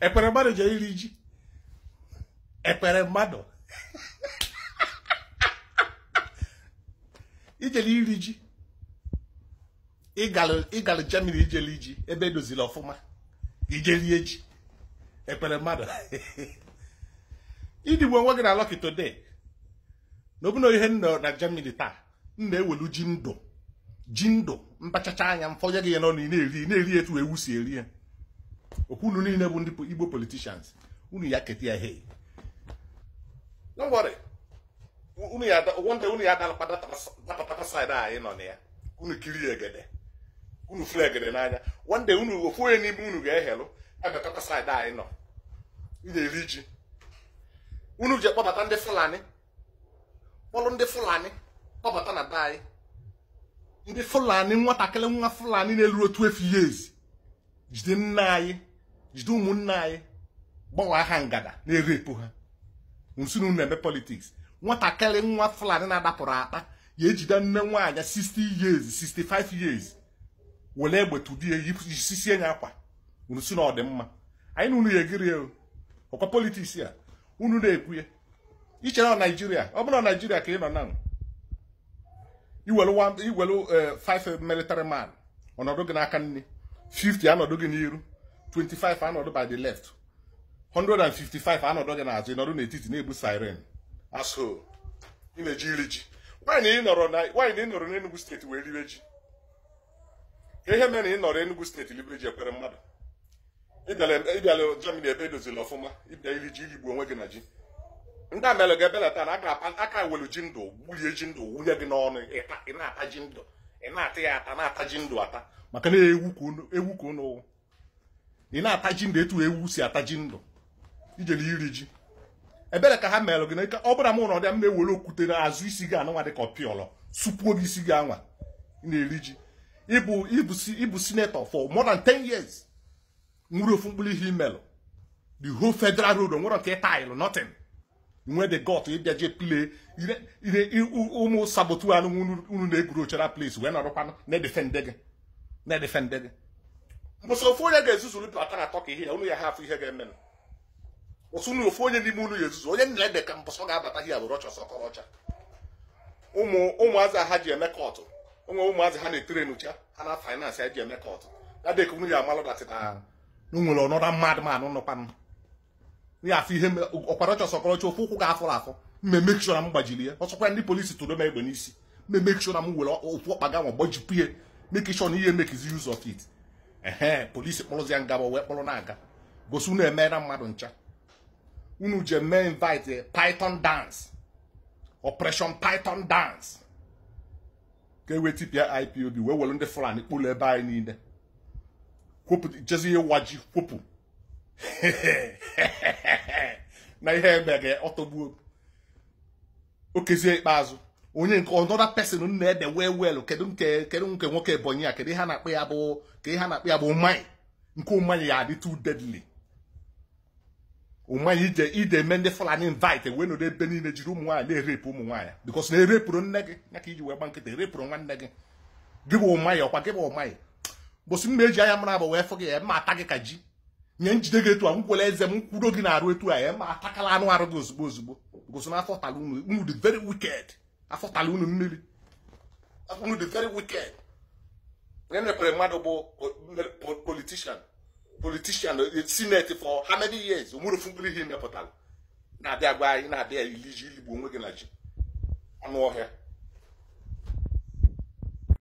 ekpere mmadụ jee iri ji ekpere mmadụ ijele iri ji ịgara Germany ijele iji ebe edozili ọfụma ijelie ji ekpere mmadụ idigbo onwe gị na Lucky today na ihe nọ na Germany taa m na-ewelu ji ndụ ji ndụ mpachacha anya mfọnye gị ya n'ọnụ ị na-eri na-eri etu ewu si eri ya okwu niile bụ ndị igbo politicians unu ya keta ya hei wonde unu ya dapatata saịdị anyị nọ na ya unu kiri egede unu egede n'anya wonde unu ofu onye n'ime unu ga-ehelụ emetata saịdị anyị nọ na-eri ji unu ji kpọbata ndị fulani kpọrụ ndị fulani kpọbata na be anyị ndị fulani nwatakịrị nwa fulani na-eru otu efu years jide nna anyị jide ụmụnna anyị gbawa aha ngada na-erepụ ha nsunu na-eme politiks nwatakịrị nwa fulani na-adapụrụ akpa ya ejide nne nwaanyị 60 years 65 years were egbe tudie isisie nya akwa nsu na ọdịmma anyị na unu ya egiri ya ọkwa politiks ya unu na-ekwu ya iche na naijiria ọ bụrụ na naijiria ka ị nọ na iwelu 5 eh, militari man ọnọdụ gị n'aka nne 50 anọdụ gị n'iru 25 anọdụ by the left 155 anọdụ gị n'azụ ịnọdụ n'etiti na-ebu siren aso ị na-eji iri ji nwaanyị ị nọrọ n'Enugu steeti wee riwe ji ihe mere ị nọrọ Enugu steeti riwe ji ekwere mmadụ ịbịala Germany ebe edozila ọfụma ịbịa iri ji irigbu onwe gị na ji ndị amelụ ga-ebelata na aka welu ji ndụ gbulie ji ndụ wunye gị n'ọnụ ị na-ata ji ndụ ị na-ata ya ata na-ata ji ndụ ata maka na ewu ka ụnụ ị na-ata ji ndụ etu ewu si ata ji ndụ na iri ji ebere ka ha meelụ gị na ike ọ bụla m ụrọ dị m na-ewere okwute na azụ isi gị anụnwa dịka ọpịọlọ supuo gị isi gị anwa na-eri ji ịbụ sinetọ for more than 10 years nwere ofu mkpụrụ ihe imelụ the whole federal road onwere nke taịlụ nothing nwee the got ịbịa je play ire ụmụ sabotu anụ unu na-egwuru ochara place wee nọrọkwanụ na-edefende gị na-edefende gị ụsọ ofu onye ga-ezuzuru bata na tọka ihe ya unu ya ha afọ ihe ga-emenụ ụsụ unu ofu onye n'ime unu ya ezuzu onye nna ede ka mbọsọ ga-abata ihe abụrụ ọchọ sọkọrọcha ụmụ ụmụazị ha ji eme kọtụ onwe ụmụazị ha na-etere n'ucha ha na faịnansị ha ji eme kọtụ ya dịka unu ya amalụ na ah, nwere ọnọdụ mmadụ ma nọkwanụ ya afọ ihe ọkparacha ọsọkọrọcha ofe ụkwụ ga-afụrụ afọ mmemme kishọra m gbajiri ya ọsọkwa ndị polisi tụrụ m egbe n'isi mmemme na m were ofu ọkpa ga nwa gbajipụ ya mekishọ na ihe mekizi use of it ehe polisi kpọrụzi ya ngaba wee kpọrọ na-aga gosi unu emeela eh, mmadụ ncha unu je mee invite eh, python dance operation python dance ka e wee tipịa ipob wee were ndị fulani kpụrụ ebe anyị niile jezi ihe ji kwopụ na ihe emere ọtọgbuo okezie ikpeazụ onye nke ọnọda pesin na ede wee wel kedu nke kedu nke nwoke ebonyi a kedu ihe na-akpọ ya bụ ka ihe na-akpọ ya bụ mmanya nke mmanya ya adị too deadly mmanya ije ide eme ndị fulani invite wee nọdụ ebe niile jiri ụmụ nwaanyị na-erepụ ụmụ nwaanyị bikos na erepụrụ nne gị ya ka iji wee gba nkịta erepụrụ nwanne gị gị bụ mmanya ọkwa gị bụ mmanya bụsị mma eji anya mara abụ wee fụ gị ya mma ata gị ka ji nye njide gị etu a nkwele eze m kwudo gị na-arụ etu a ya ma atakala anụ arụ gị ozugbo ozugbo gosi na afọtala unu unu dị very wicked afọtala unu mmiri unu dị very wicked onye mepere mmadụ bụ politishan politician e, senate for how many years onwerefu mkpụrụ ihe mepụtara na-abịa gwa anyị na-abịa iliji iligbo onwe gị na ji anụ ọhịa